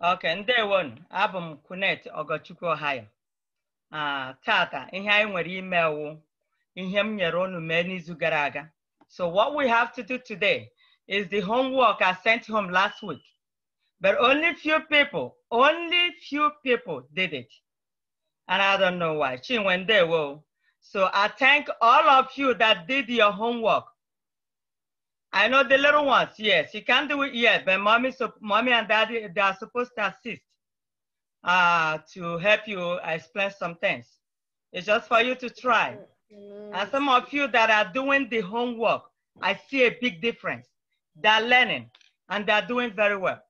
Okay, oke ndewo abụ m kunet ogochukwu ohio ah, tata ihe anyị nwere ime wụ ihe m nyere unu mee n'izu gara aga so what we have to do today is the homework I sent home last week. But only few people, only few people did it. And I don't know why. Chinwendewo. So I thank all of you that did your homework. I know the little ones, yes. She can do it, yet. but mommy, so, mommy and daddy, they are supposed to assist uh, to help you explain some things. It's just for you to try. Mm-hmm. And some of you that are doing the homework, I see a big difference. They're learning and they're doing very well.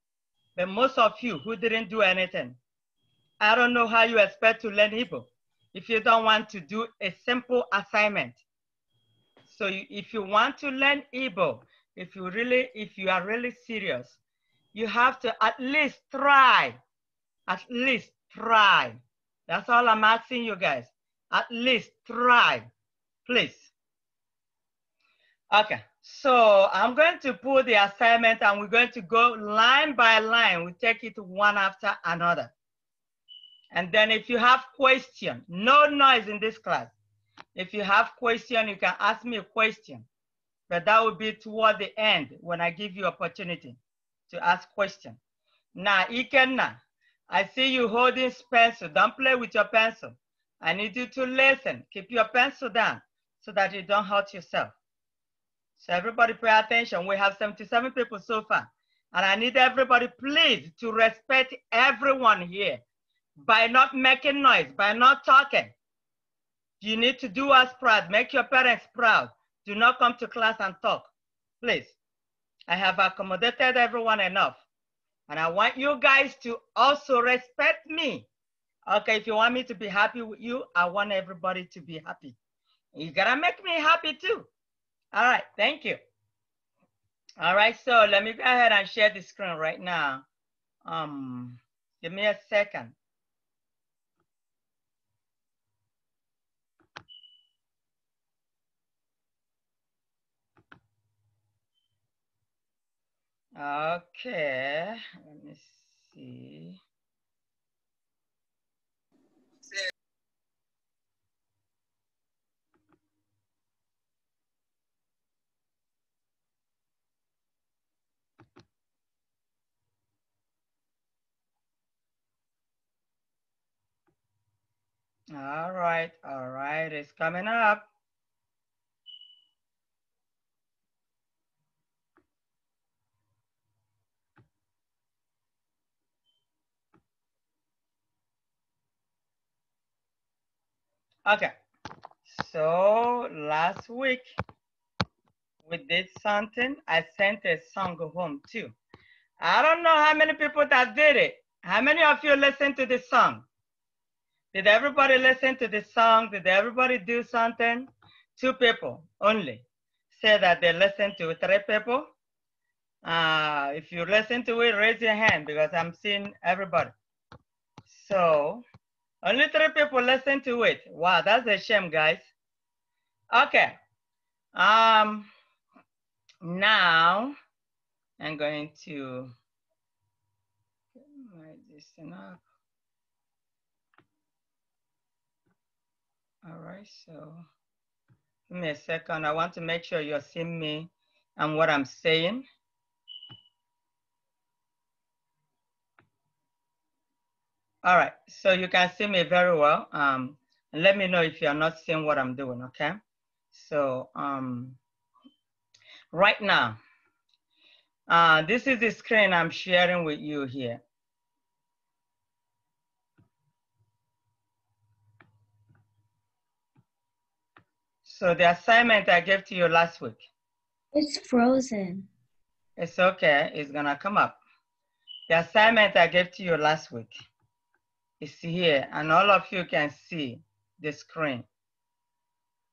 But most of you who didn't do anything, I don't know how you expect to learn Hebrew if you don't want to do a simple assignment. So you, if you want to learn Igbo, if you really, if you are really serious, you have to at least try, at least try. That's all I'm asking you guys. At least try, please. Okay, so I'm going to pull the assignment and we're going to go line by line. We take it one after another. And then if you have question, no noise in this class. If you have question, you can ask me a question but that will be toward the end when I give you opportunity to ask question. Now, Ikenna, I see you holding pencil. Don't play with your pencil. I need you to listen. Keep your pencil down so that you don't hurt yourself. So everybody pay attention. We have 77 people so far. And I need everybody please to respect everyone here by not making noise, by not talking. You need to do us proud. Make your parents proud. Do not come to class and talk, please. I have accommodated everyone enough. And I want you guys to also respect me. Okay, if you want me to be happy with you, I want everybody to be happy. You gotta make me happy too. All right, thank you. All right, so let me go ahead and share the screen right now. Um, give me a second. Okay, let me see. All right, all right, it's coming up. Okay, so last week we did something. I sent a song home too. I don't know how many people that did it. How many of you listened to this song? Did everybody listen to this song? Did everybody do something? Two people only say that they listened to three people. Uh, if you listen to it, raise your hand because I'm seeing everybody. So only three people listen to it. Wow, that's a shame, guys. Okay. Um, now I'm going to get my this up. All right, so give me a second. I want to make sure you're seeing me and what I'm saying. All right, so you can see me very well. Um, let me know if you're not seeing what I'm doing, okay? So um, right now, uh, this is the screen I'm sharing with you here. So the assignment I gave to you last week. It's frozen. It's okay, it's gonna come up. The assignment I gave to you last week is here and all of you can see the screen.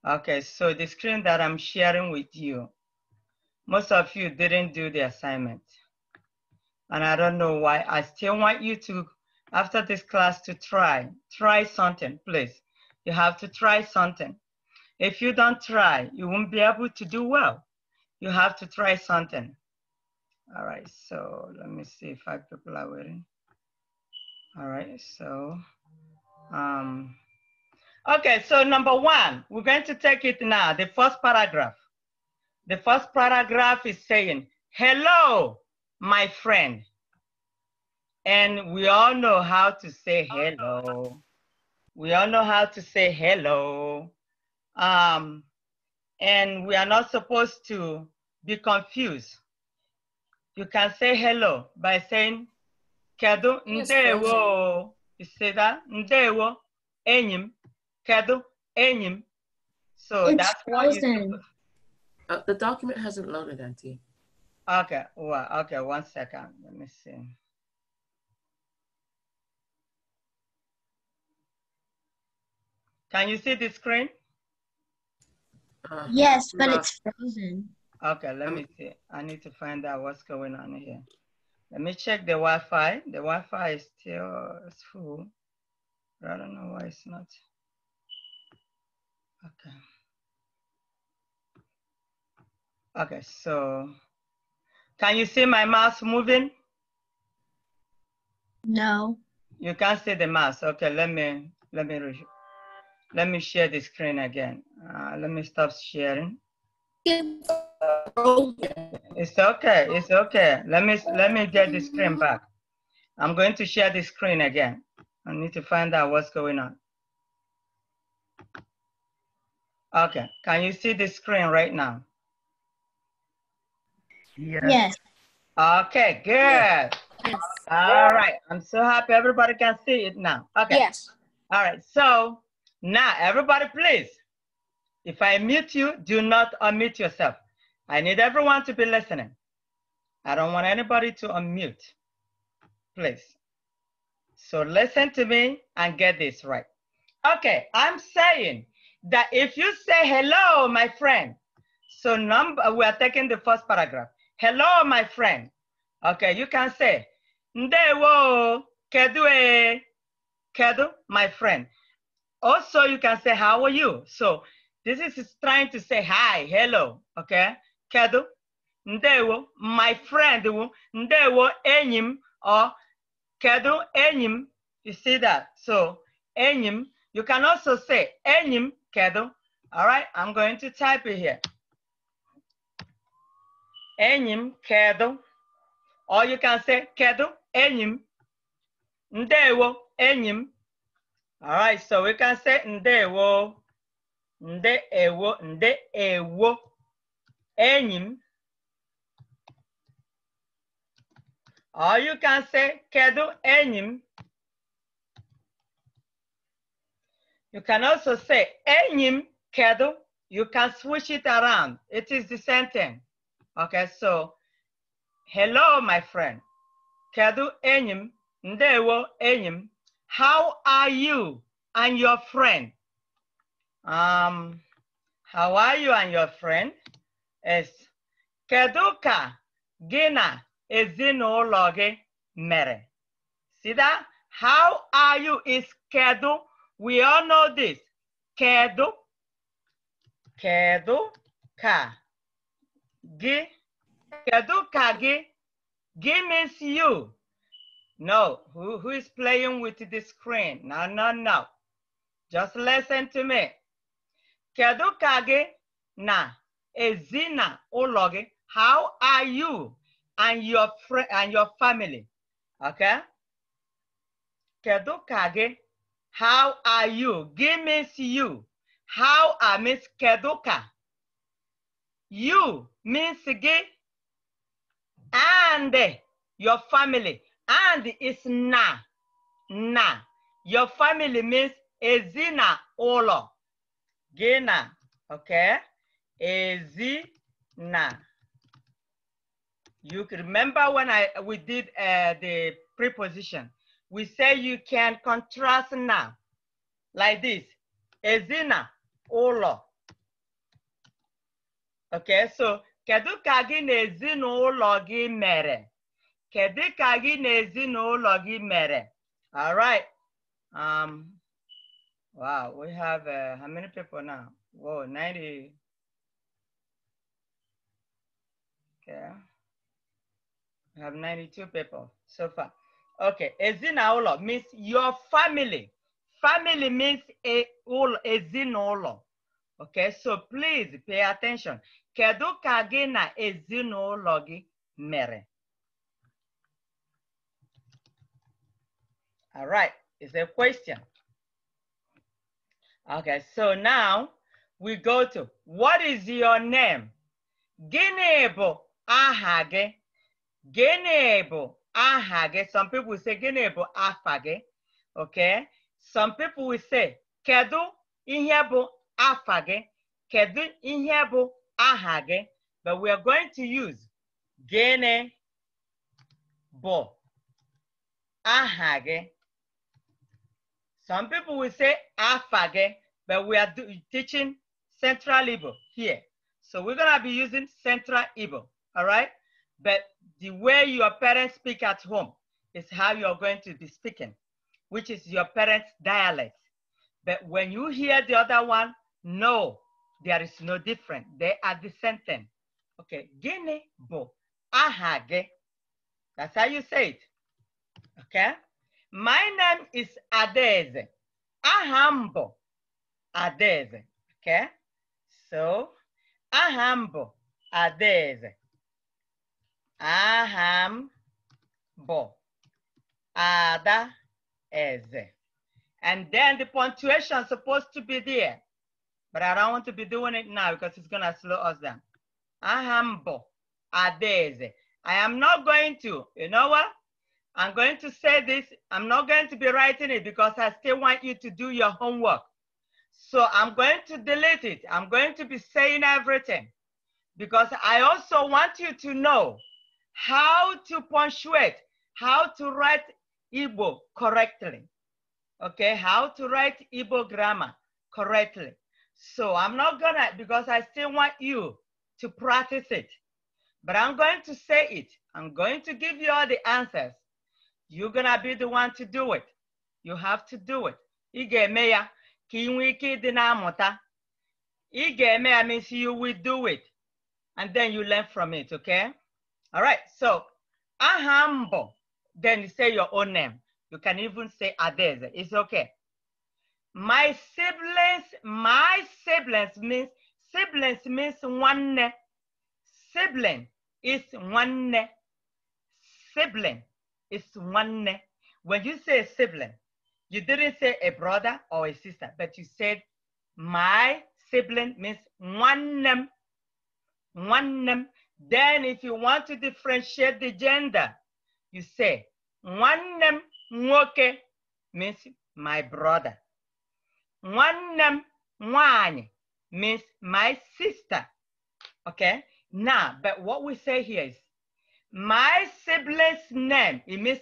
Okay, so the screen that I'm sharing with you, most of you didn't do the assignment. And I don't know why. I still want you to, after this class, to try. Try something, please. You have to try something. If you don't try, you won't be able to do well. You have to try something. All right, so let me see if five people are waiting. All right, so, um, okay, so number one, we're going to take it now, the first paragraph. The first paragraph is saying, hello, my friend. And we all know how to say hello. We all know how to say hello. Um, and we are not supposed to be confused. You can say hello by saying Kedu ndewo Say that ndewo enyi m. Kedu enyi m. So that's what uh, the document hasn't loaded, Auntie. Okay, well, okay, one second. Let me see. Can you see the screen? Uh, yes, but uh, it's frozen. Okay, let me see. I need to find out what's going on here. Let me check the Wi-Fi. The Wi-Fi is still it's full. But I don't know why it's not. Okay. Okay, so can you see my mouse moving? No. You can't see the mouse. Okay, let me let me let me share the screen again. Uh, let me stop sharing. Yeah. It's okay. It's okay. Let me let me get the screen back. I'm going to share the screen again. I need to find out what's going on. Okay. Can you see the screen right now? Yes. yes. Okay. Good. Yes. All right. I'm so happy everybody can see it now. Okay. Yes. All right. So now everybody, please. If I mute you, do not unmute yourself. I need everyone to be listening. I don't want anybody to unmute, please. So listen to me and get this right. Okay, I'm saying that if you say hello, my friend, so number we are taking the first paragraph. Hello, my friend. Okay, you can say ndewo kedu e kedu, my friend. Also, you can say how are you. So this is trying to say hi, hello. Okay, kedu ndewo my friend wo, ndewo enyi m or kedu enyi m you see that so enyi m you can also say enyi m kedu all right i'm going to type it here enyi m kedu or you can say kedu enyi m ndewo enyi m all right so we can say ndewo ndewo ndewo enyim, or you can say kedu enim. You can also say enim kedu. You can switch it around. It is the same thing. Okay, so hello, my friend. Kedu enim. ndewo enyim. How are you and your friend? Um, how are you and your friend? is kedu ka gị na ezinụlọ gị mere see that how are you is kedu we all know this kedu kedu ka gị kedu ka gị gị means you no who, who is playing with the screen no no no just listen to me kedu ka gị na Ezina Ologi, how are you and your friend and your family? Okay. Kedu kage, how are you? Give means you. How are Miss Keduka? You means gay and your family. And is na. Na. Your family means ezina olo. Gina. Okay ezina. You remember when I we did uh, the preposition, we say you can contrast now, like this, ezina, ụlọ. Okay, so kedu ka gị na ezinụlọ gị mere? Kedu ka gị gị mere? All right. Um, wow, we have uh, how many people now? Whoa, 90. Okay. I have 92 people so far. Okay, ezinaụlọ means your family. Family means a Okay, so please pay attention. Kedu ka gị na ezinụlọ gị mere? All right, it's a question. Okay, so now we go to what is your name? Gịnị Ahage, genebo ahage. some people say genebo afage. okay some people will say kedu ihe afage, kedu ihe ahage. but we are going to use gịnị bụ some people will say afage, but we are teaching central Ibo here so we're gonna be using central Ibo all right? But the way your parents speak at home is how you're going to be speaking, which is your parents' dialect. But when you hear the other one, no, there is no difference. They are the same thing. Okay, Guinea bo ahage. That's how you say it. Okay? My name is Adeze. Ahambo Adeze. Okay? So, Ahambo Adeze. Aham bo. Ada eze. And then the punctuation is supposed to be there. But I don't want to be doing it now because it's going to slow us down. Aham bo. Ada eze. I am not going to, you know what? I'm going to say this. I'm not going to be writing it because I still want you to do your homework. So I'm going to delete it. I'm going to be saying everything because I also want you to know how to punctuate, how to write Igbo correctly. Okay, how to write Igbo grammar correctly. So I'm not gonna, because I still want you to practice it, but I'm going to say it. I'm going to give you all the answers. You're gonna be the one to do it. You have to do it. Ị ya ka ị nwee na Ị means you will do it. And then you learn from it, okay? All right, so Ahambo, then you say your own name. You can even say Adeze, it's okay. My siblings, my siblings means, siblings means one Sibling is one Sibling is one When you say sibling, you didn't say a brother or a sister, but you said my sibling means one name. One name then if you want to differentiate the gender, you say, nwannem mwoke means my brother. Nwannem mwani means my sister. Okay? Now, but what we say here is, my sibling's name, it means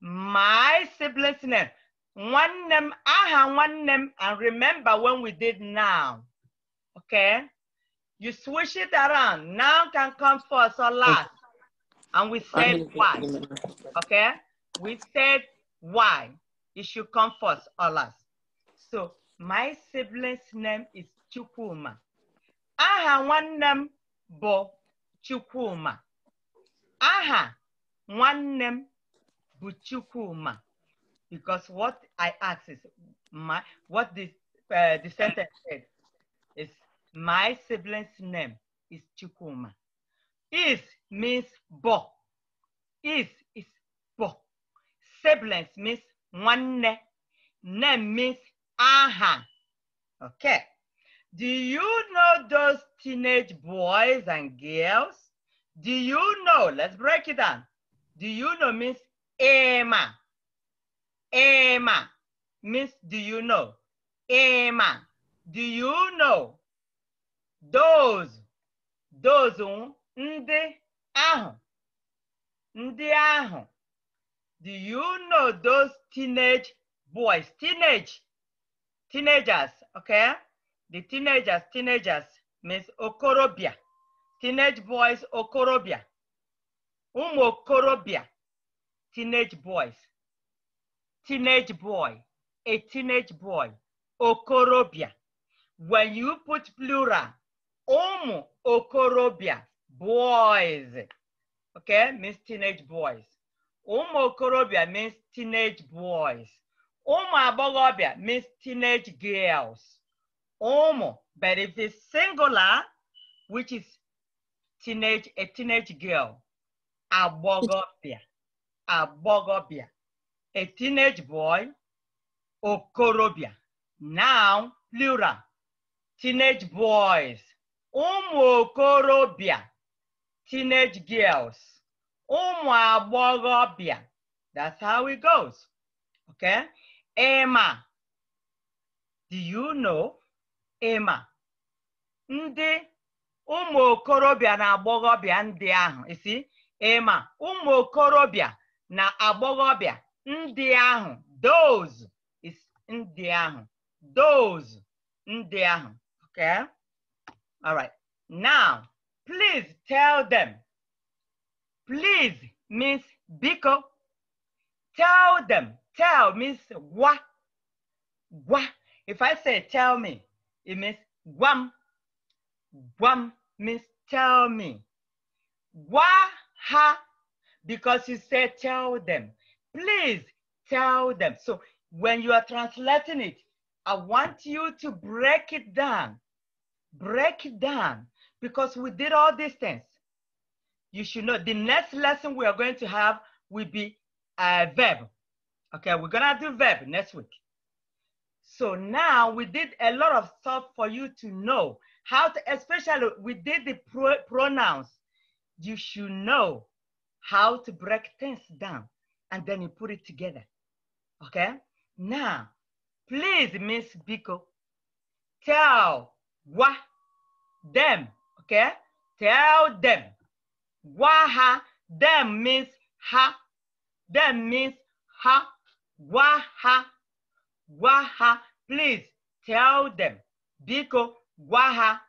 my sibling's name. One name, aha, one name, and remember when we did now. Okay? You switch it around. Now can come first or last. And we said why. Okay? We said why. It should come first or last. So my sibling's name is Chukuma. I name, Bo Chukuma. I have Aha name, But Chukuma, Because what I asked is my what this uh, the sentence said is my sibling's name is Chikuma. Is means bo. Is is bo. Siblings means one name. Name means aha. Okay. Do you know those teenage boys and girls? Do you know? Let's break it down. Do you know means Emma. Emma means do you know? Emma. Do you know? those those um. ndị ahụ ndị ahụ do you know those teenage boys teenage teenagers okay the teenagers teenagers means okorobịa teenage boys okorobịa ụmụ okorobịa teenage boys teenage boy a teenage boy okorobịa when you put plural ụmụ okorobịa boys okay means teenage boys ụmụ okorobịa means teenage boys ụmụ agbọghọbịa means teenage girls ụmụ but if it's singular which is teenage a teenage girl agbọghọbịa agbọghọbịa a teenage boy okorobịa now plural teenage boys ụmụ okorobịa teenage girls ụmụ agbọghọbịa that's how it goes okay Ema do you know Ema ndị ụmụ okorobịa na agbọghọbịa ndị ahụ isi Ema ụmụ okorobịa na agbọghọbịa ndị ahụ those ndị ahụ those ndị ahụ okay All right. Now, please tell them. Please, Miss Biko, tell them. Tell Miss Gwa. Gwa. If I say tell me, it means guam. Guam means tell me. Gwa ha. Because you said tell them. Please tell them. So when you are translating it, I want you to break it down break it down because we did all these things. You should know the next lesson we are going to have will be a uh, verb. Okay, we're gonna do verb next week. So now we did a lot of stuff for you to know how to, especially we did the pro pronouns. You should know how to break things down and then you put it together. Okay, now please, Miss Biko, tell Gwa them. Okay? Tell them. Gwa ha. Them means ha. Them means ha. Gwa ha. ha. Please tell them. Biko gwa ha.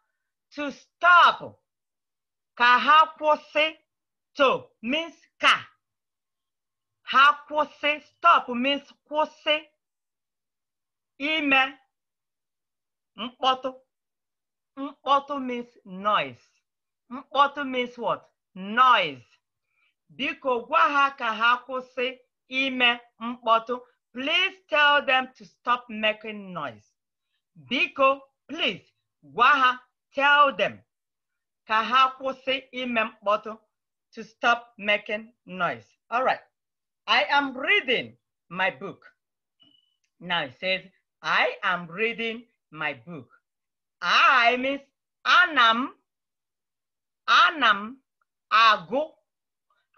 To stop. Ka ha To means ka. Ha kwụsị. Stop means kwụsị. Ime mkpọtụ. Mkpọtụ mm, means noise. Mkpọtụ mm, means what? Noise. Biko gwa ha ka ha kwụsị ime mm, Please tell them to stop making noise. Biko, please gwa ha, tell them ka ha kwụsị ime mkpọtụ to stop making noise. All right. I am reading my book. Now it says, I am reading my book. I means ana m ana m agụ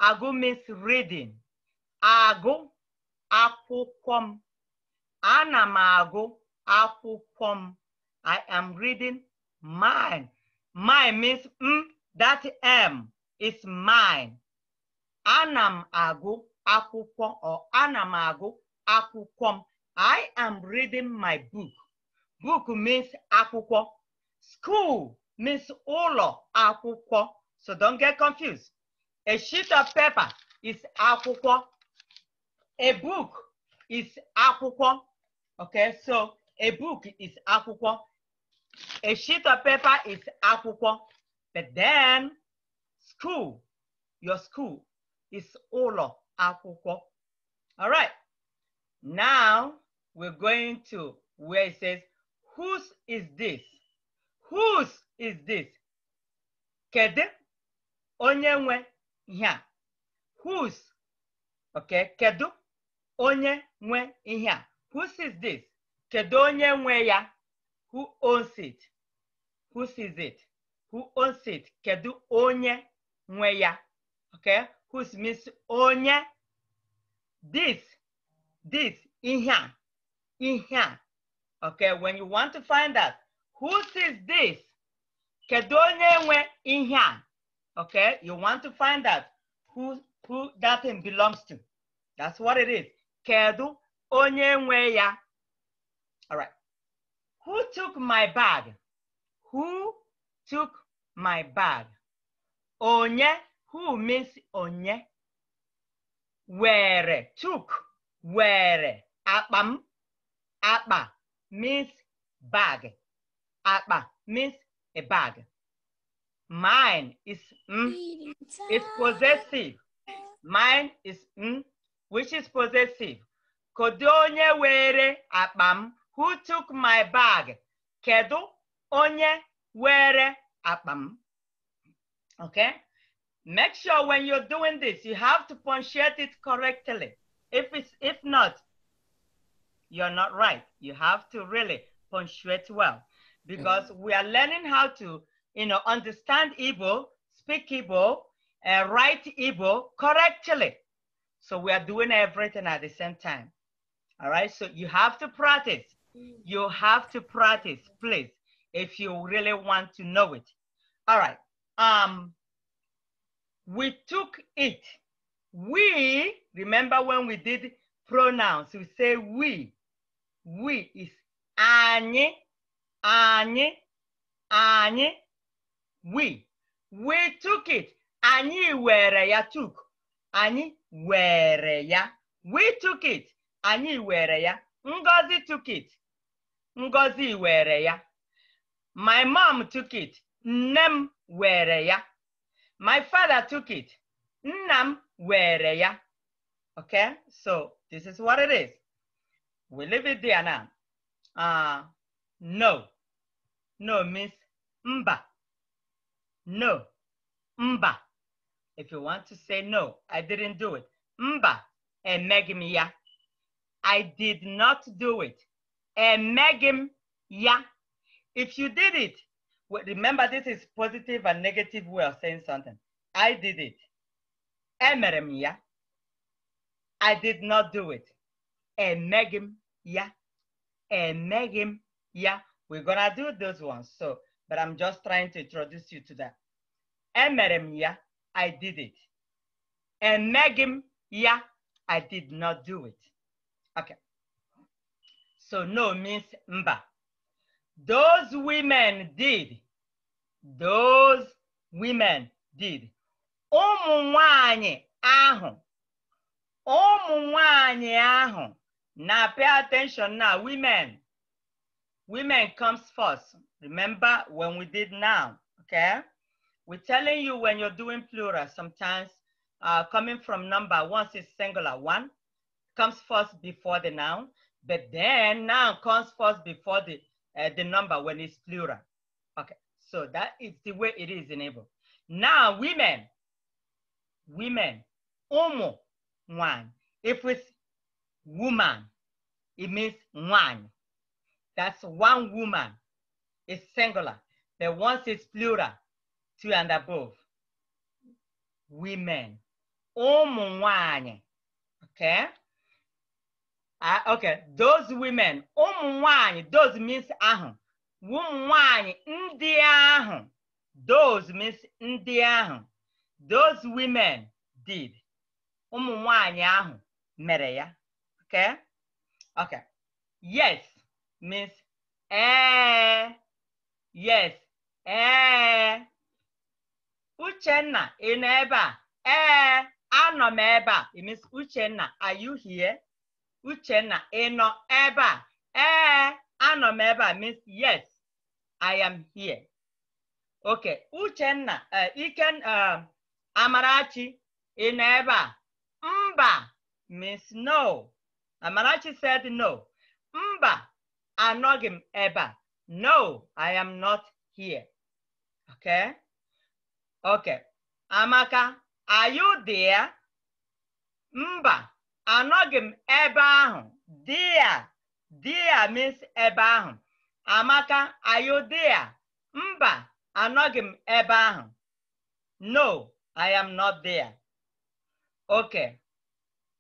agụ means reading agụ akwụkwọ m ana m agụ akwụkwọ m I am reading mine mine means m that m is mine ana m agụ akwụkwọ or ana m agụ akwụkwọ m I am reading my book Book means akwụkwọ. School means ụlọ akwụkwọ. So don't get confused. A sheet of paper is akwụkwọ. A book is akwụkwọ. Okay, so a book is akwụkwọ. A sheet of paper is akwụkwọ. But then school, your school is ụlọ akwụkwọ. All right. Now we're going to where it says Whose is this? Whose is this? Kedu onye nwe ihe a? Whose? ok kedu onye nwe ihe a? Whose is this? Kedu onye nwe ya? Who owns it? Whose is it? Who owns it? Kedu onye nwe ya? ok whose means onye. This, this, ihe a, ihe a. Okay, when you want to find out whose is this, kedu onye nwe ihe Okay, you want to find out who who that thing belongs to. That's what it is. Kedu onye ya? All right. Who took my bag? Who took my bag? Onye, who means onye? Where took, where? Abam akpa, means bag. Akba means a bag. Mine is mm, is possessive. Mine is mm, which is possessive. Kedu onye were akpa Who took my bag? Kedu onye were akpa Okay? Make sure when you're doing this, you have to punctuate it correctly. If it's if not, you're not right. You have to really punctuate well because mm-hmm. we are learning how to, you know, understand Igbo, speak Igbo, uh, write Igbo correctly. So we are doing everything at the same time. All right. So you have to practice. Mm. You have to practice, please, if you really want to know it. All right. Um, we took it. We, remember when we did pronouns, we say we. We is Anye, Anye, Anye. We. We took it. Anyị were ya took. Anyị were ya. We took it. Anyị were ya. Ngozi took it. Ngozi were ya. My mom took it. Nne m were ya. My father took it. Nnam were ya. Okay, so this is what it is. We leave it there now. Uh, no. No means mba. No. Mba. If you want to say no, I didn't do it. Mba. Emegim ya. I did not do it. Emegim ya. If you did it, remember this is positive and negative way of saying something. I did it. Emerem ya. I did not do it. Emegim yeah, and Megan, yeah. We're gonna do those ones. So, but I'm just trying to introduce you to that. Megan, yeah, I did it. And Megan, yeah, I did not do it. Okay. So no means mba. Those women did. Those women did. Ụmụ nwanyị ahụ. Ụmụ nwanyị ahụ. Now pay attention now, women. Women comes first. Remember when we did now, okay? We're telling you when you're doing plural, sometimes uh, coming from number, once it's singular, one comes first before the noun, but then noun comes first before the, uh, the number when it's plural. Okay, so that is the way it is in Igbo. Now, women, women, umu, one. If we woman. It means one. That's one woman. It's singular. The ones is plural, two and above. Women. Umunwanye. Okay? Uh, okay, those women. one. those means ah, one. ndị ahụ. Those means ndị Those women did. Umunwanye one mere ya. Okay. Okay. Yes means eh. Yes. Eh. Uchenna, ị nọ ebe a? Eh, anọ m ebe a. It means Uchenna, are you here? Uchenna, ị nọ ebe a? Eh, anọ m ebe a means yes, I am here. Okay, Uchenna, uh, Iken, uh, Amarachi, ị nọ ebe a? Mba means no. Amarachi said no. Mba, anọghị m ebe a. No, I am not here. Okay? Okay. Amaka, are you there? Mba, anọghị m ebe ahụ. There. There means ebe ahụ. Amaka, are you there? Mba, anọghị m ebe ahụ. No, I am not there. Okay.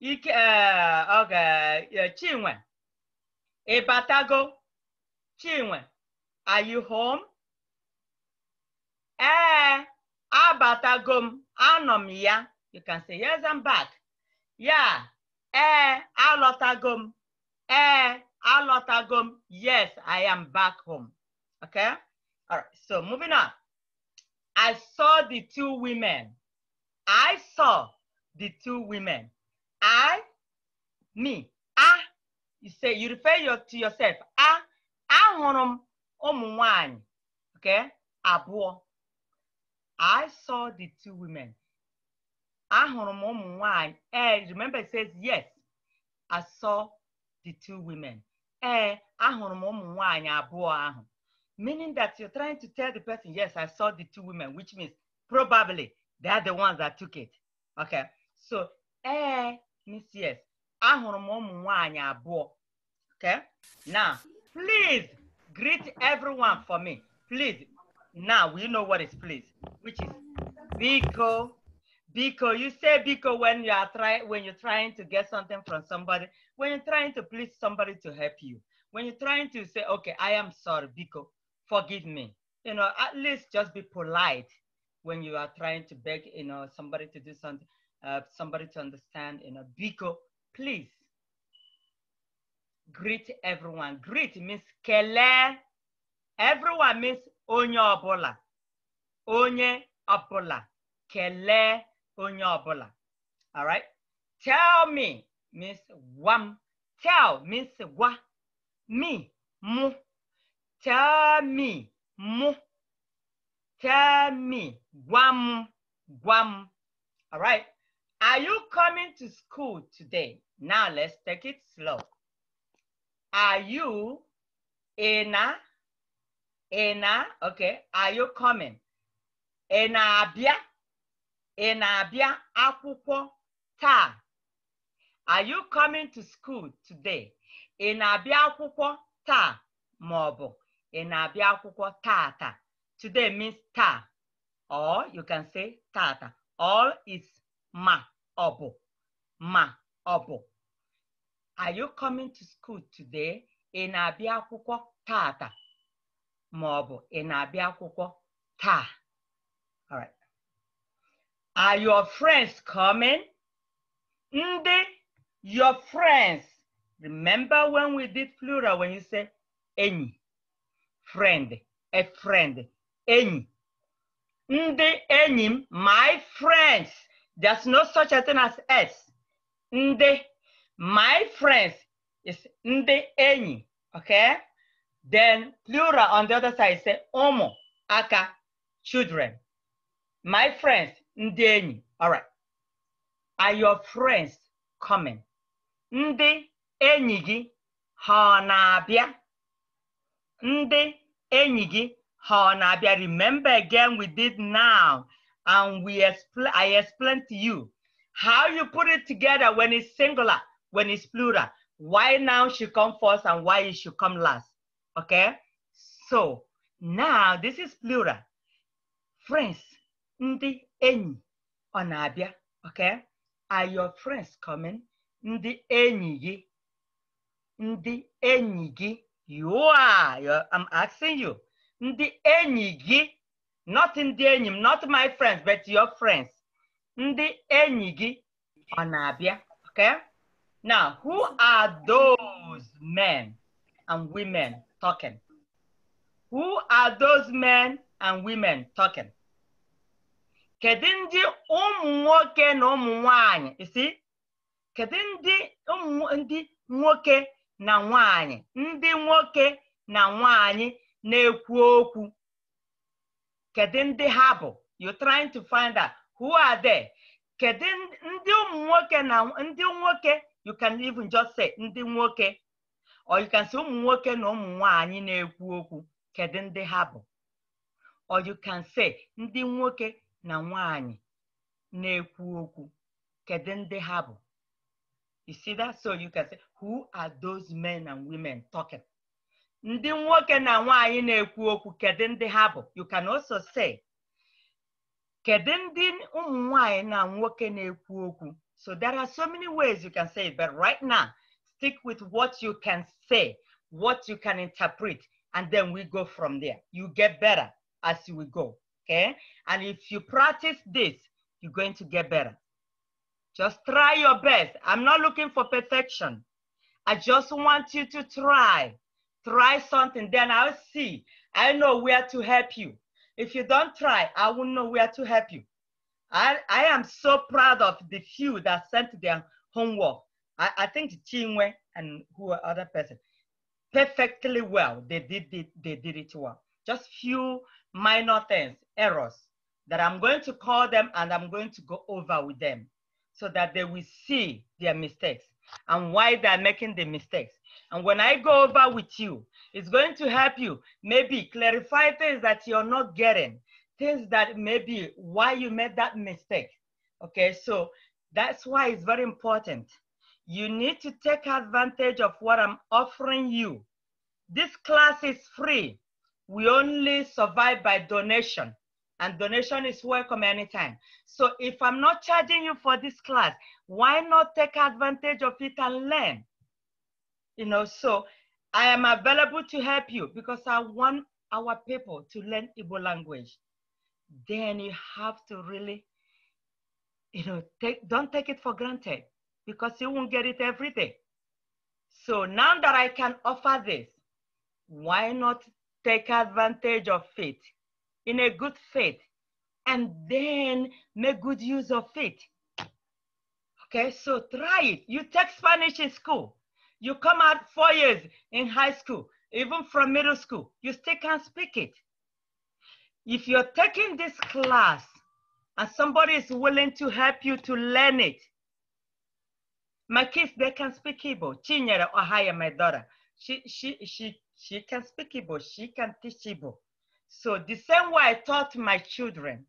Okay. ike eh, oge eh, chinwe ịbatago chinwe are you home? ee eh, abatago i anọ m ya you can say yes I'm back Yeah. Eh. alọtago m ee alọtago m yes I am back home okay all right so moving on I saw the two women I saw the two women I, me, I. You say, you refer your, to yourself. I, I hụrụ m okay, abụọ. I saw the two women. Ahụrụ m ụmụ Eh, remember it says yes. I saw the two women. Eh, ahụrụ m ụmụ nwanyị Meaning that you're trying to tell the person, yes, I saw the two women, which means probably they are the ones that took it. Okay. So, eh, Miss Yes, ahụrụ m ụmụ nwanyị abụọ. Okay? Now, please greet everyone for me. Please. Now, we know what is please, which is Biko. Biko, you say Biko when you are trying when you're trying to get something from somebody, when you're trying to please somebody to help you, when you're trying to say, okay, I am sorry, Biko, forgive me. You know, at least just be polite when you are trying to beg, you know, somebody to do something uh, somebody to understand, in a Biko, please greet everyone. Greet means kele. Everyone means onye obola. Onye obola. Kele onye obola. All right. Tell me means wam. Tell means wa. Me, mu. Tell me, mu. Tell me, guam, guam. All right. Are you coming to school today? Now let's take it slow. Are you ena? Ena, okay. Are you coming? Ena abia? Ena abia akwụkwọ ta? Are you coming to school today? Ena na na-abịa akwụkwọ taa Ena ọ bụ ị na-abịa akwụkwọ tata. Today means ta, Or you can say tata. All is ma ọ bụ ma ọ bụ are you coming to school today ị na-abịa akwụkwọ taata ma ọ bụ ị na-abịa akwụkwọ taa all right are your friends coming ndị your friends remember when we did plural when you say enyi friend a friend enyi ndị enyi m my friends There's no such a thing as S. Nde, my friends is nde any, okay? Then plural on the other side say omo, aka, children. My friends, nde any, all right. Are your friends coming? Nde enyi gị ha na enyi gị Remember again we did now and we expl- I explained to you how you put it together when it's singular, when it's plural, why now should come first and why it should come last. Okay? So now this is plural. Friends, ndi enyi onabia. Okay? Are your friends coming? Ndi enyi Ndi enyi gi. You are. I'm asking you. Ndi enyi not ndị enyi m not my friends but your friends ndị enyi gị ọ na-abịa okay now who are those men and women talking who are those men and women talking kedu ndị ụmụ nwoke na ụmụ nwanyị isi kedu ndị ndị nwoke na nwanyị ndị nwoke na nwanyị na-ekwu okwu kedu ndị ha bụ you trying to find out who are there kedu ndị ụmụ nwoke na ndị nwoke you can even just say ndị nwoke or you can say ụmụ nwoke na ụmụ nwanyị na-ekwu okwu kedu ndị ha bụ or you can say ndị nwoke na nwanyị na-ekwu okwu kedu ndị ha bụ you see that so you can say who are those men and women talking ndị nwoke na na na-ekwu okwu kedu ndị ha bụ you can also say kedu ndị ụmụ na nwoke na-ekwu okwu so there are so many ways you can say it, but right now stick with what you can say what you can interpret and then we go from there you get better as we go okay and if you practice this you're going to get better just try your best i'm not looking for perfection i just want you to try Try something, then I'll see. I know where to help you. If you don't try, I won't know where to help you. I, I am so proud of the few that sent their homework. I, I think Chinwe and who other person perfectly well. They did it, they did it well. Just few minor things, errors that I'm going to call them and I'm going to go over with them so that they will see their mistakes and why they're making the mistakes. And when I go over with you, it's going to help you maybe clarify things that you're not getting, things that maybe why you made that mistake. Okay, so that's why it's very important. You need to take advantage of what I'm offering you. This class is free. We only survive by donation and donation is welcome anytime. So if I'm not charging you for this class, why not take advantage of it and learn? You know, so I am available to help you because I want our people to learn Igbo language. Then you have to really, you know, take, don't take it for granted because you won't get it every day. So now that I can offer this, why not take advantage of it in a good faith and then make good use of it? Okay, so try it. You take Spanish in school. You come out four years in high school, even from middle school, you still can't speak it. If you're taking this class and somebody is willing to help you to learn it, my kids, they can speak Igbo. Chinyere Ohaya, my daughter, she, she, she, she can speak Igbo. She can teach Igbo. So the same way I taught my children,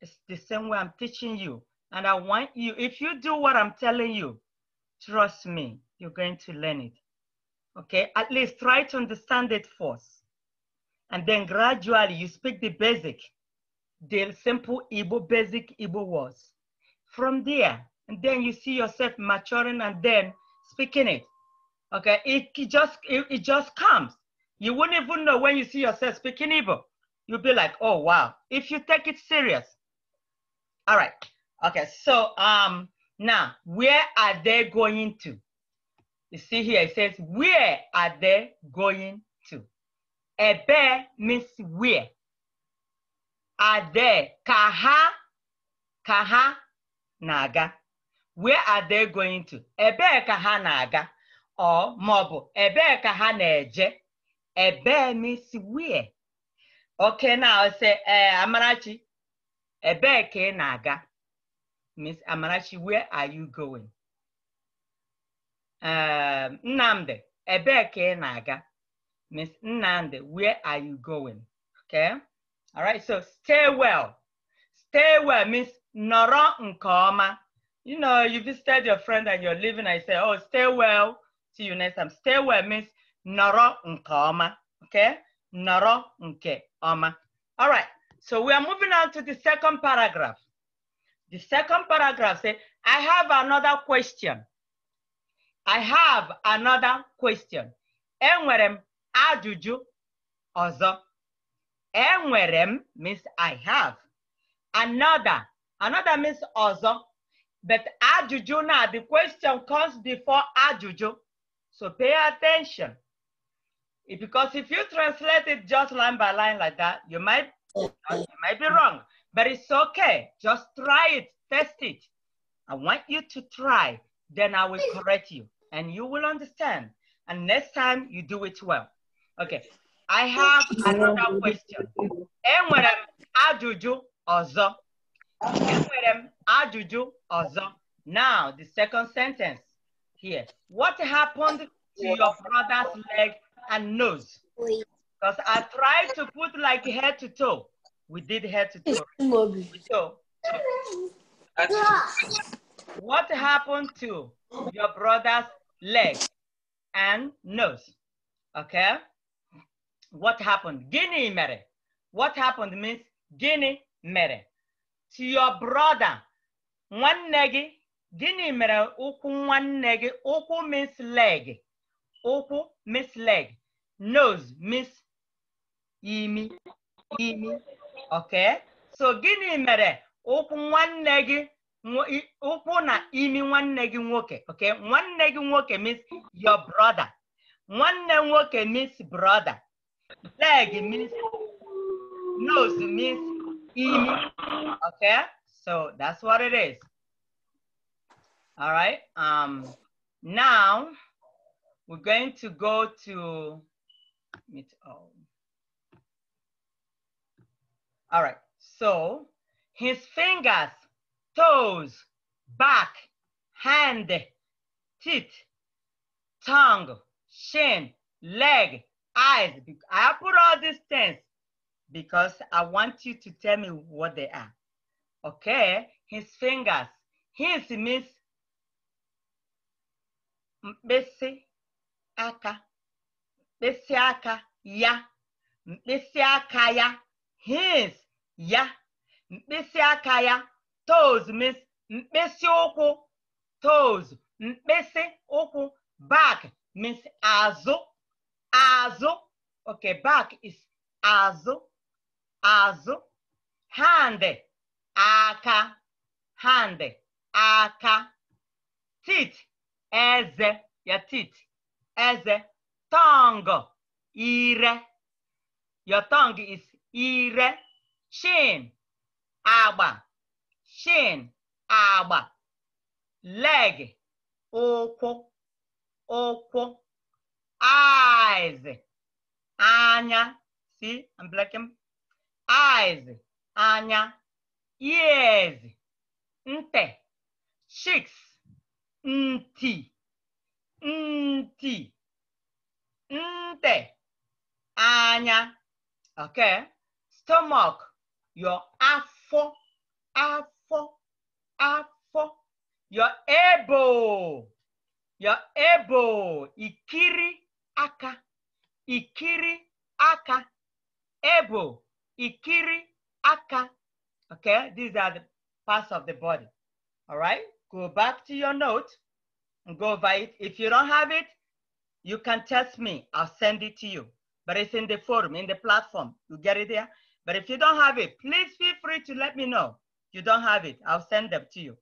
it's the same way I'm teaching you. And I want you, if you do what I'm telling you, trust me, you're going to learn it. Okay, at least try to understand it first. And then gradually you speak the basic, the simple Igbo, basic Igbo words. From there, and then you see yourself maturing and then speaking it. Okay, it, it just it, it just comes. You wouldn't even know when you see yourself speaking Igbo. You'll be like, oh wow, if you take it serious. All right. Okay, so um now where are they going to? You see here, it says, where are they going to? Ebe means where. Are they? Kaha. Kaha naga. Where are they going to? Ebe kaha naga. Or maọbụ ebe kaha na-eje. Ebe means where. Okay, now say, uh, Amarachi, ebe ka ị na-aga? Miss Amarachi, where are you going? Nande, um, Nnamdi, naga. Miss Nnamdi, where are you going? Okay? All right, so stay well. Stay well means nọrọ nke You know, you visited your friend and you're leaving I say, oh, stay well. See you next time. Stay well means nọrọ nke Okay? Nọrọ nke All right, so we are moving on to the second paragraph. The second paragraph says, I have another question. I have another question. Enwere m ajụjụ ọzọ. Enwere m means I have. Another. Another means ọzọ. But ajụjụ now, the question comes before ajụjụ. So pay attention. Because if you translate it just line by line like that, you might, you might be wrong. But it's okay. Just try it. Test it. I want you to try. Then I will correct you and you will understand. And next time you do it well. Okay. I have another question. Enwere m ajụjụ ọzọ. Enwere m ajụjụ ọzọ. Now, the second sentence here. What happened to your brother's leg and nose? Because I tried to put like head to toe. We did head to toe. So, what happened to your brother's leg, and nose. Okay? What happened? Guinea mere. What happened means guinea mere. To your brother, one negi, guinea mere, uku one negi, uku means leg. Uku means leg. Nose means imi, imi. Okay? So guinea mere, uku one negi, ụkwụ na imi nwanne gị nwoke okay nwanne gị nwoke means your brother nwanne nwoke means brother leg means nose means imi okay so that's what it is all right um now we're going to go to meet all oh. all right so his fingers toes, back, hand, teeth, tongue, shin, leg, eyes. I put all these things because I want you to tell me what they are. Okay, his fingers. His means mkpịsị aka, mkpịsị aka ya, mkpịsị aka ya, his ya, mkpịsị aka ya, toes means mkpịsị ụkwụ toes mkpịsị ụkwụ back means azụ azụ okay back is azụ azụ hand aka hand aka teeth eze your teeth eze tongue ire your tongue is ire chin agba shin agba leg ụkwụ ụkwụ eyes anya see I'm blacking eyes anya ears nte, cheeks ntị ntị nte, anya okay stomach your afọ afọ afọ, afọ. You're able. You're able. Ikiri aka. Ikiri aka. Able. Ikiri aka. Okay, these are the parts of the body. All right, go back to your note and go over it. If you don't have it, you can text me. I'll send it to you. But it's in the forum, in the platform. You get it there? But if you don't have it, please feel free to let me know. You don't have it. I'll send them to you.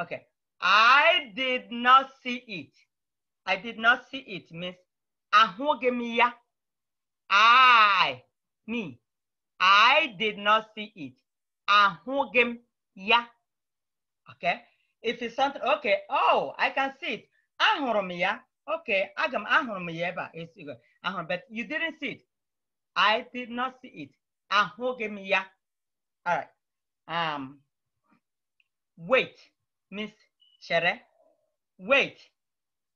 Okay. I did not see it. I did not see it Miss. means ahugemiya. I, me, I did not see it. Ahugemiya. Okay. If it's something, okay, oh, I can see it. Ahurumiya. Okay, agam ahurumiya. It's good. But you didn't see it. I did not see it. Ahugemiya. All right. Um, wait, Miss Shere. Wait,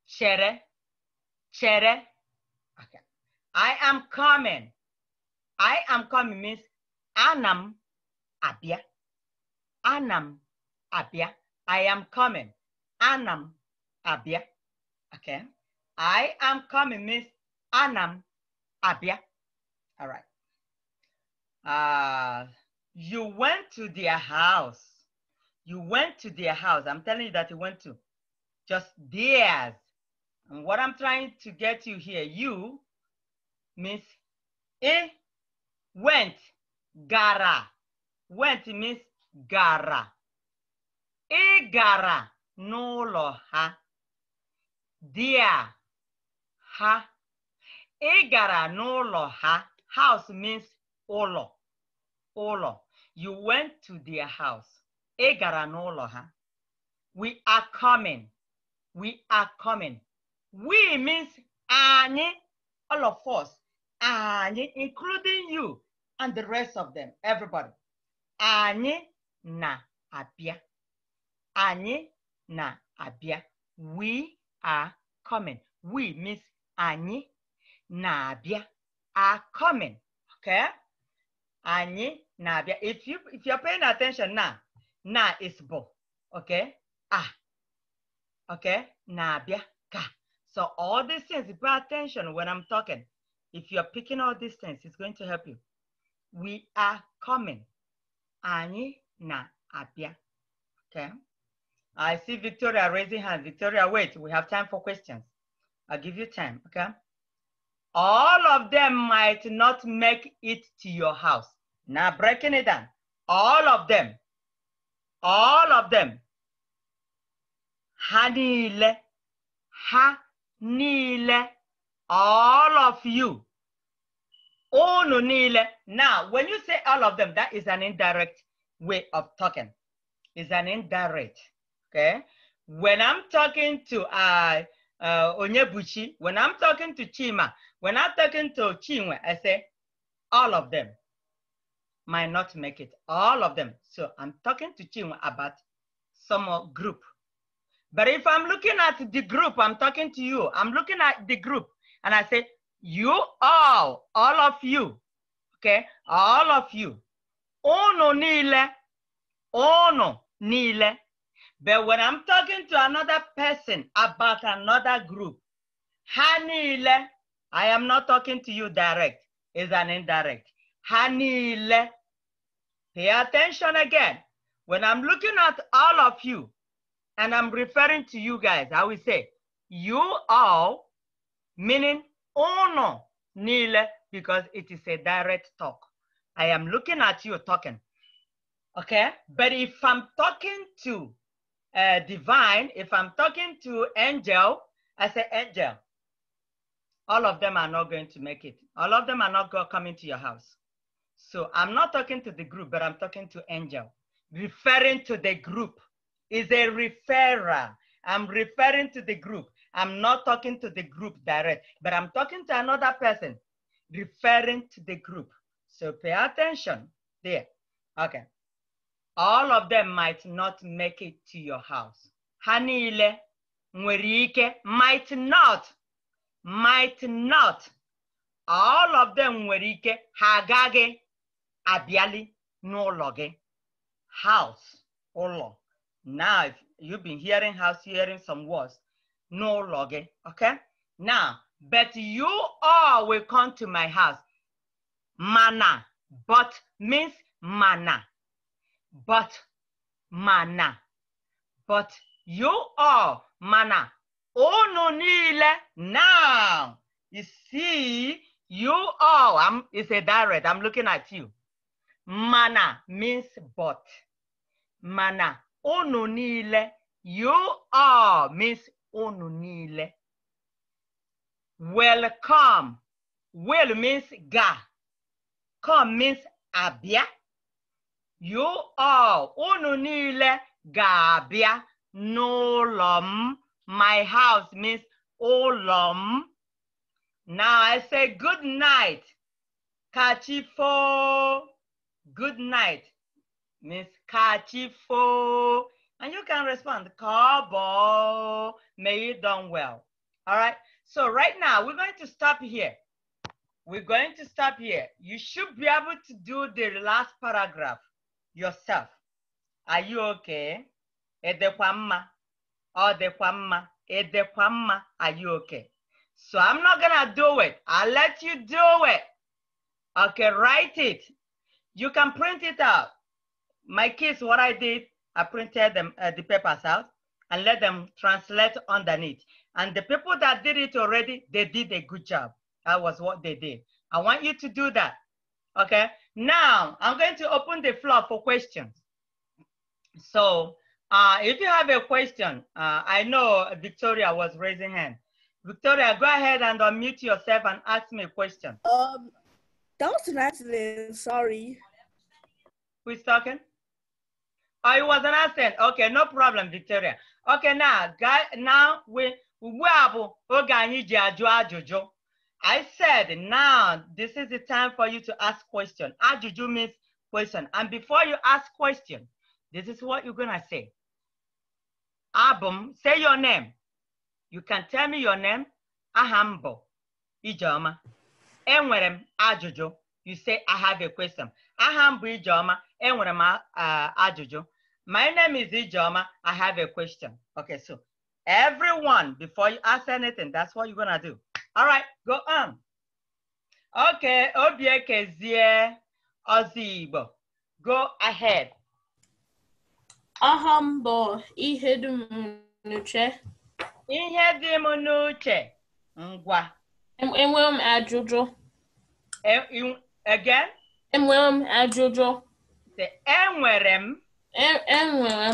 Shere. Shere. Okay. I am coming. I am coming Miss. Anam Abia. Anam Abia. I am coming. Anam Abia. Okay. I am coming Miss Anam Abia. All right. Uh, you went to their house. You went to their house. I'm telling you that you went to just theirs. And what I'm trying to get you here, you means it went, gara. Went means gara. E gara n'ụlọ ha. Dia ha. E gara n'ụlọ ha. House means olo. Olo. You went to their house. ha. We are coming. We are coming. We means any, all of us, any, including you and the rest of them, everybody. Anyị na-abịa. Anyị na-abịa. We are coming. We means anyị na-abịa. Are coming. Okay? Anyị biya. If you if you're paying attention now, na is bo. Okay? Ah. Okay? na biya ka. So all these things, you pay attention when I'm talking. If you're picking all these things, it's going to help you. We are coming. Anyị na-abịa. Okay? I see Victoria raising hand. Victoria, wait, we have time for questions. I'll give you time, okay? All of them might not make it to your house. Now breaking it down. All of them. All of them. Hanile. Hanile. All of you. Onunile. Now, when you say all of them, that is an indirect way of talking. It's an indirect. Okay. When I'm talking to uh, uh, Onyebuchi, when I'm talking to Chima, when I'm talking to Chinwe, I say all of them might not make it, all of them. So I'm talking to you about some group. But if I'm looking at the group, I'm talking to you, I'm looking at the group and I say, you all, all of you, okay, all of you, ono nile, ono nile. But when I'm talking to another person about another group, hanile, I am not talking to you direct, it's an indirect. Hanile, Pay attention again. When I'm looking at all of you and I'm referring to you guys, I will say, you all, meaning uno, nile, because it is a direct talk. I am looking at you talking. Okay? But if I'm talking to uh, divine, if I'm talking to angel, I say angel. All of them are not going to make it. All of them are not going to come into your house. So I'm not talking to the group, but I'm talking to Angel. Referring to the group is a referrer. I'm referring to the group. I'm not talking to the group direct, but I'm talking to another person, referring to the group. So pay attention there. Okay. All of them might not make it to your house. Hanile, Mwerike, might not, might not. All of them Mwerike, Hagage, abịali n'ụlọ gị house ụlọ now if you've been hearing house hearing some words n'ụlọ gị okay now but you all will come to my house mana but means mana but mana but you all mana unu niile now you see you all I'm, it's a direct i'm looking at you Mana means but. Mana. Unu niile. You are means unu niile. Welcome. Well means ga. Come means abia. You are unu niile ga-abịa n'ụlọ m. My house means ụlọ m. Now I say good night. Kachifo good night Miss kachifo. And you can respond, Carbo. may you done well. All right, so right now we're going to stop here. We're going to stop here. You should be able to do the last paragraph yourself. Are you okay? Edekwamma, odekwamma, oh, edekwamma, are you okay? So I'm not gonna do it. I'll let you do it. Okay, write it you can print it out. My kids, what I did, I printed them, uh, the papers out and let them translate underneath. And the people that did it already, they did a good job. That was what they did. I want you to do that. Okay. Now I'm going to open the floor for questions. So uh, if you have a question, uh, I know Victoria was raising hand. Victoria, go ahead and unmute yourself and ask me a question. Um, do sorry. Who's talking? Oh, it was an accent. Okay, no problem, Victoria. Okay, now, guy, now we we have ah, I said now this is the time for you to ask question. Ajuju ah, means question. And before you ask question, this is what you're gonna say. Abum, say your name. You can tell me your name. Ahambo. Ijoma. Enwerem Ajojo. Ah, you say I have a question aha m bụ Ijeoma enwere m ajụjụ my name is Ijeoma I have a question okay so everyone before you ask anything that's what you're gonna do all right go on okay Obiekezie Ozigbo go ahead ọhọm bụ ihe dị m n'uche ihe dị m n'uche ngwa enwe m ajụjụ again Enwere m ajụjụ. Enwere m. Enwere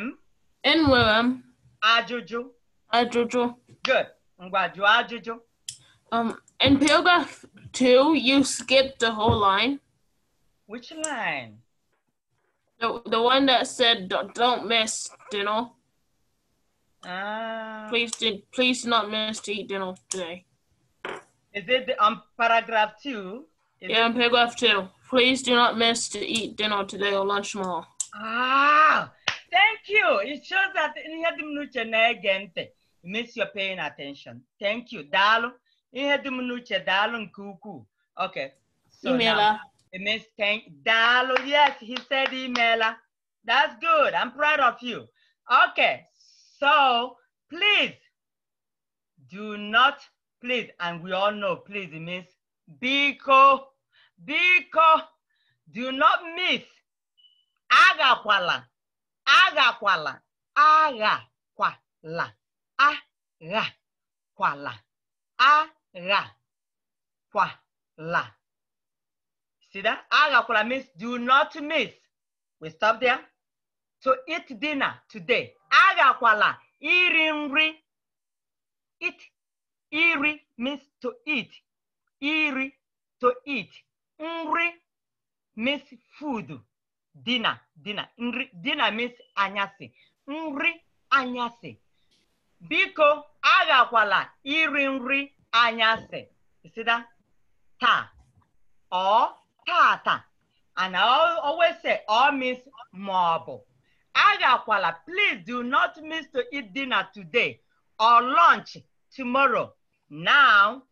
m. Enwere m. Ajụjụ. Ajụjụ. Good. Ngwa jụọ ajụjụ. Um, in paragraph two, you skipped the whole line. Which line? The, the one that said, don't miss dinner. Ah. Please, please not miss to eat dinner today. Is it um paragraph two? Yeah, and paragraph two. Please do not miss to eat dinner today or lunch tomorrow. Ah, thank you. It shows that ihe dị m n'uche na-ege Miss, you're paying attention. Thank you. Daalụ. Ihe dị m n'uche daalụ nke Okay. So Imela. it means thank daalụ. Yes, he said imela. That's good. I'm proud of you. Okay. So, please do not please and we all know please it means biko biko do not miss agakwala agakwala agakwala agakwala agakwala see that agakwala means do not miss we stop there to eat dinner today agakwala iri nri eat iri means to eat iri to eat nri miss food dinner dinner nri dinner means anyasị nri anyasị biko aghakwala iri nri anyasị sida taa ọ tata and I always say ọ means maọbụ aghakwala please do not miss to eat dinner today or lunch tomorrow now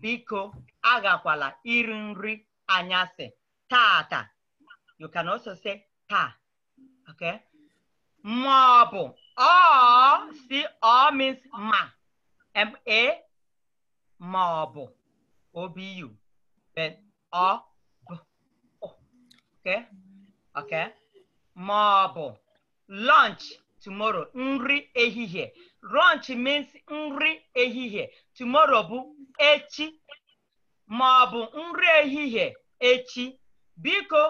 biko agakwala iri nri anyasị tata you can also say taa okay ma ọ bụ ọ si ọ means ma ma ma ọ bụ obi yu, ọ bụ ma ọ bụ lọnch. tomorrow nri ehihie lunch means nri ehihie tomorrow bụ echi ma ọ bụ nri ehihie echi biko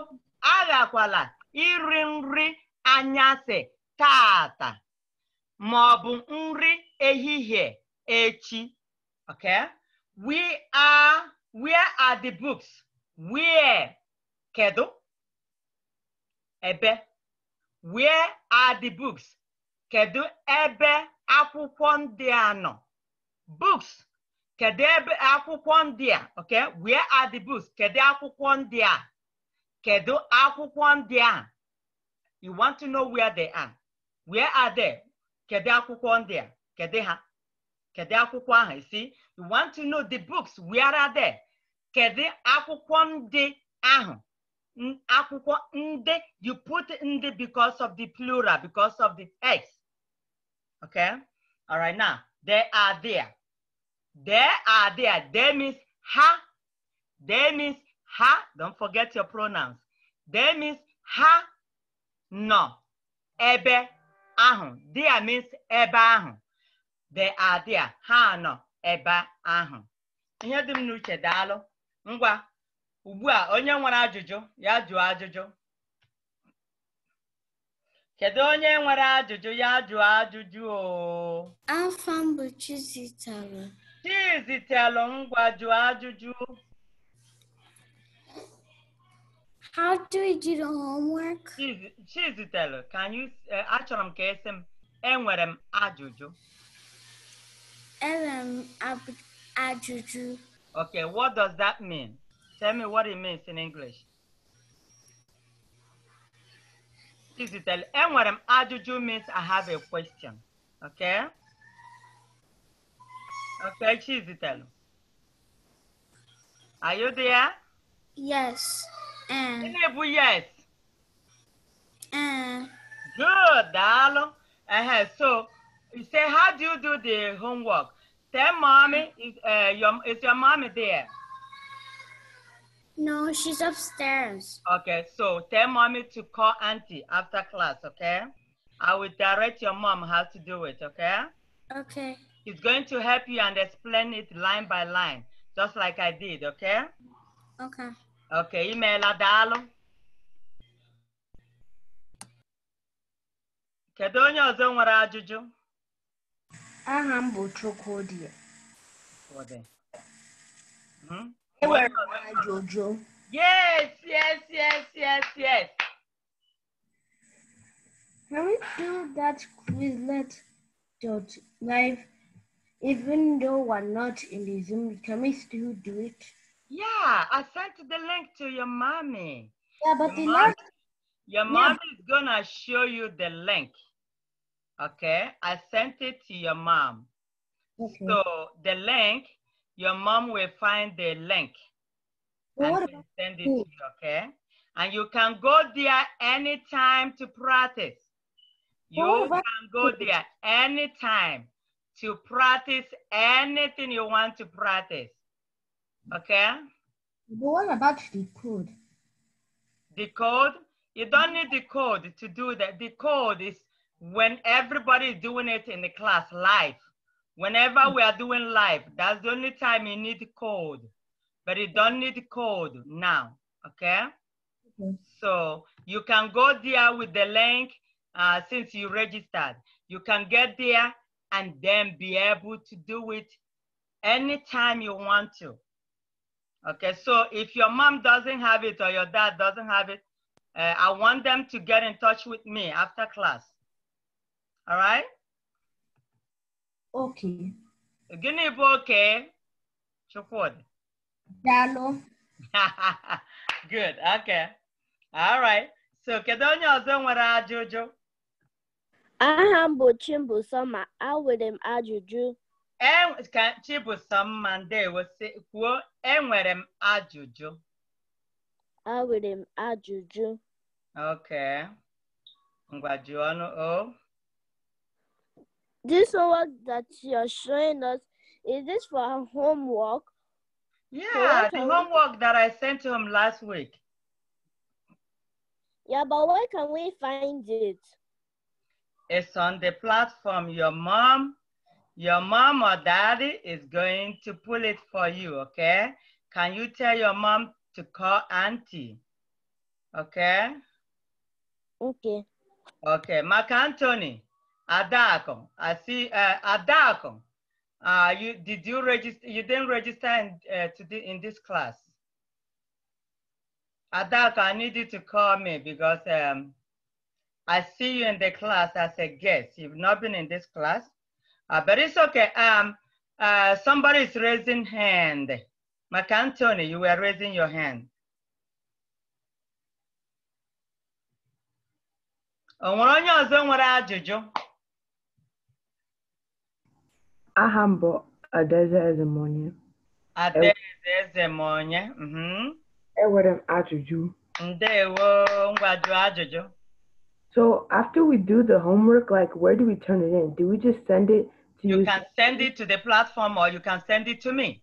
aghakwala iri nri anyasị taata ma ọ bụ nri ehihie echi okay we are where are the books where kedu ebe where are the books kedu ebe akwụkwọ ndị a nọ books kedu ebe akwụkwọ ndị a okay where are the books kedu akwụkwọ ndị a kedu akwụkwọ ndị a you want to know where they are where are they kedu akwụkwọ ndị a kedu ha kedu akwụkwọ ahụ isi you want to know the books where are they kedu akwụkwọ ndị ahụ akwụkwọ ndị you put ndị because of the plural because of the x Okay. All right. Now, they are there. They are there. They means ha They means ha, Don't forget your pronouns. They means ha No. Ebe ahụ. There means ebe ahụ. They are there. Ha nọ ebe ahụ. Ihe dị m n'uche daalụ. Ngwa. Ugbu a onye nwere ajụjụ ya jụọ ajụjụ. Kedu onye nwere ajụjụ ya jụọ ajụjụ o? Afa m bụ Chizitelụ. Chizitelụ ngwa jụọ ajụjụ. How do we do the homework? Chizitelụ, can you, uh, achọrọ m ka esi m, enwere m ajụjụ. Enwere m ajụjụ. Okay, what does that mean? Tell me what it means in English. Cizidel, enwere m ajụjụ means I have a question. Okay? Okay, Chizitel, Are you there? Yes. Um, Gịnị bụ yes? And. Good, daalụ. Uh -huh. So, you say, how do you do the homework? Tell mommy, is, uh, your, is your mommy there? No, she's upstairs. Okay, so tell mommy to call auntie after class, okay? I will direct your mom how to do it, okay? Okay. She's going to help you and explain it line by line, just like I did, okay? Okay. Okay, email Adalo. Kedu onye ọzọ nwere ajụjụ? Aha m bụ Chukwudi. Chukwudi. Hmm? Hi, Jojo. Yes, yes, yes, yes, yes. Can we do that Quizlet dot live? Even though we're not in the Zoom, can we still do it? Yeah, I sent the link to your mommy. Yeah, but your the last your mom is gonna show you the link. Okay, I sent it to your mom. Okay. So the link your mom will find the link and send it to you, okay? And you can go there anytime to practice. You can go there anytime to practice anything you want to practice, okay? But what about the code? The code? You don't need the code to do that. The code is when everybody is doing it in the class live. Whenever we are doing live, that's the only time you need code, but you don't need code now, okay? So you can go there with the link uh, since you registered. You can get there and then be able to do it anytime you want to. Okay, so if your mom doesn't have it or your dad doesn't have it, uh, I want them to get in touch with me after class. All right? oke gịnị bụ oke chukwudi daalụ good okay all right so kedu onye ọzọ nwere ajụjụ aha m bụ Chimbusoma e, e nwere m ajụjụ ka Chimbusoma ndewo kwuo enwere m ajụjụ nwere m ajụjụ okay ngwa jụọ ọnụ o this homework that you're showing us, is this for homework? Yeah, the homework that I sent to him last week. Yeah, but where can we find it? It's on the platform. Your mom, your mom or daddy is going to pull it for you, okay? Can you tell your mom to call auntie? Okay? Okay. Okay, Mark Anthony. Adacom. I see uh, Adacom. Uh, you did you register? You didn't register in, uh, to the, in this class. Adacom, I need you to call me because um, I see you in the class as a guest. You've not been in this class, uh, but it's okay. Um, uh, somebody is raising hand. McAntony, you were raising your hand. onye ọzọ nwere ajụjụ? aha A bụ Adaeze Ezemonye. Adaeze Ezemonye. Mhm. Enwere m ajụjụ. Ndewo ngwajụ ajụjụ. So after we do the homework, like where do we turn it in? Do we just send it to you? You can send it to the platform or you can send it to me.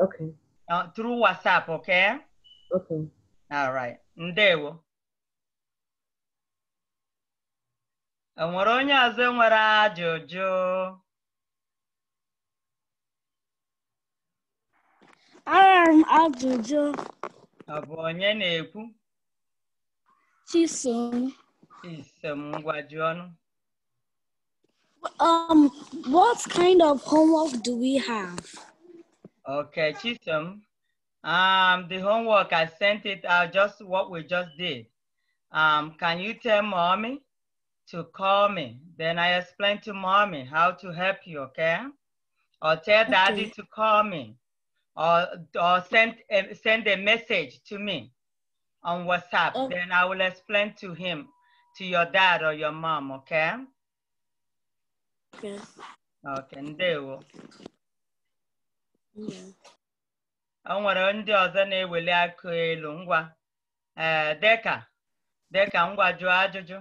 Okay. Uh, through WhatsApp, okay? Okay. All right. Ndewo. Enwere onye ọzọ ajụjụ? I'm ajụjụ. Ọ onye na-ekwu? Chisom. Chisom, ngwa Um, what kind of homework do we have? Okay, Chisom. Um, the homework, I sent it out just what we just did. Um, can you tell mommy to call me? Then I explain to mommy how to help you, okay? Or tell okay. daddy to call me or, or send, a, send a message to me on WhatsApp. Oh. Then I will explain to him, to your dad or your mom, okay? Okay. Okay, ndewo. O nwere ndị ọzọ na-eweli akụ elu ngwa ee eh, deka deka ngwa jụọ ajụjụ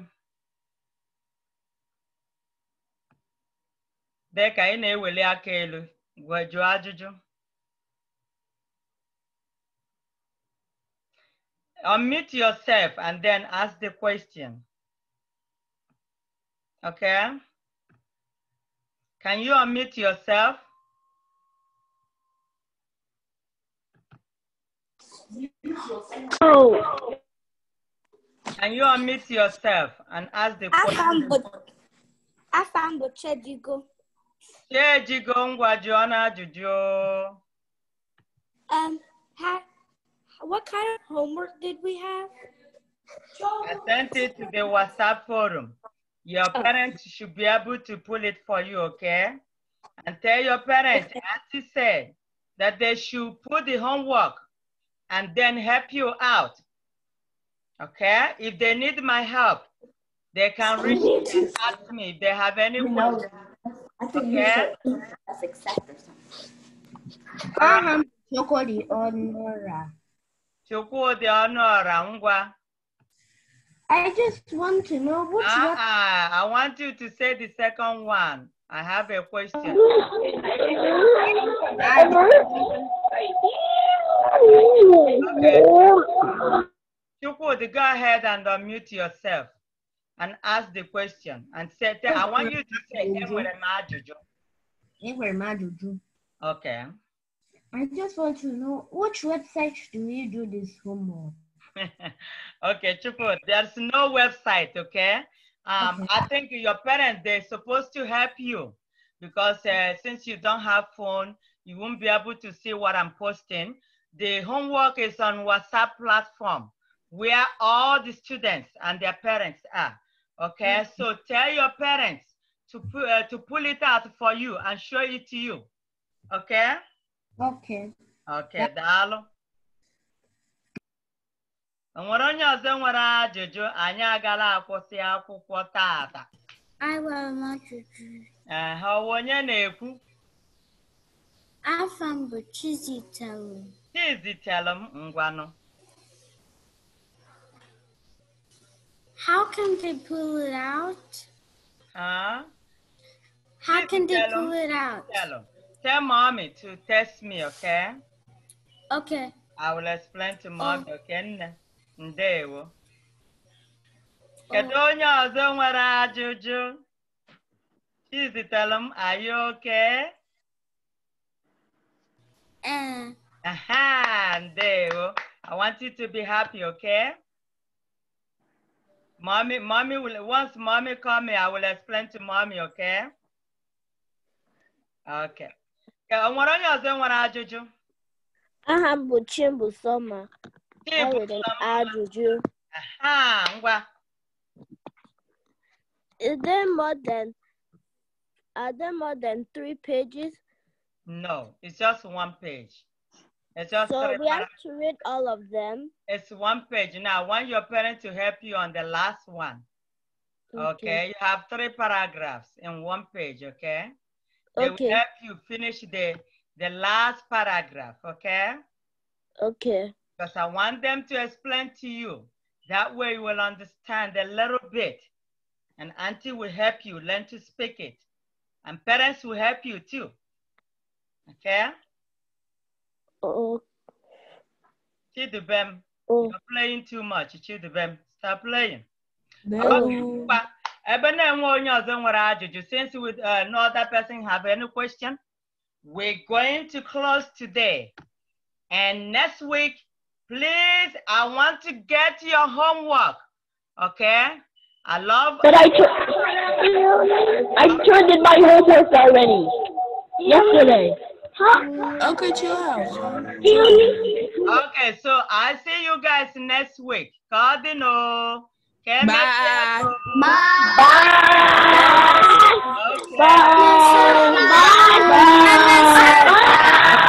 deka ị na-eweli aka elu gwa jụọ ajụjụ unmute yourself and then ask the question. Okay? Can you unmute yourself? Oh. Can you unmute yourself and ask the question? Afa m bụ Chejigo. Chejigo ngwa jụọ na Um, hi what kind of homework did we have? I sent it to the WhatsApp forum. Your oh. parents should be able to pull it for you, okay? And tell your parents, as you said, that they should put the homework and then help you out. Okay? If they need my help, they can reach me to ask me if they have any questions. Okay? That's exactly something. chocolate Nora. I just want to know what's uh -uh. I want you to say the second one. I have a question. okay. Chukwudi, go ahead and unmute yourself and ask the question and say, I want you to say, Okay. I just want to know which website do you do this homework? okay, Chupu, there's no website, okay? Um, okay. I think your parents, they're supposed to help you because uh, since you don't have phone, you won't be able to see what I'm posting. The homework is on WhatsApp platform where all the students and their parents are, okay? Mm -hmm. So tell your parents to, pu uh, to pull it out for you and show it to you, okay? Ok. Ok, daalụ. Onwere onye ọzọ nwere ajụjụ anyị agala akwụsị akwụkwọ tata. Enwere m ajụjụ. Ee, ọ onye na-ekwu? Afọ m bụ Chizitelụ. Chizitelụ m ngwanụ. How can they pull it out? Huh? How can they pull it out? Tell mommy to test me, okay? Okay. I will explain to mommy, oh. okay? Ndewo. Oh. Kedu onye ọzọ nwere ajụjụ? tell him. are you okay? Uh. Aha, ndewo. I want you to be happy, okay? Mommy, mommy will, once mommy call me, I will explain to mommy, okay? Okay o nwere onye ọzọ nwere ajụjụ aha m bụ Chimbusoma enwere m ajụjụ ngwa Is there more than are there more than three pages? No, it's just one page. It's just so we have to read all of them. It's one page. Now I want your parent to help you on the last one. Okay. okay, you have three paragraphs in one page, okay? They will help you finish the, the last paragraph, okay? Okay. Because I want them to explain to you. That way you will understand a little bit. And auntie will help you learn to speak it. And parents will help you too. Okay? Oh. Chidubem, oh. you're playing too much. Chidubem, stop playing. No ebe na-enwe onye ọzọ nwere ajụjụ since we, uh, no other person have any question we're going to close today and next week please i want to get your homework okay i love but i i turned in my homework already yesterday huh? okay chill out okay so i see you guys next week cardinal Okay, bye. Bye. Bye. Bye. Bye. Bye. Bye. Bye.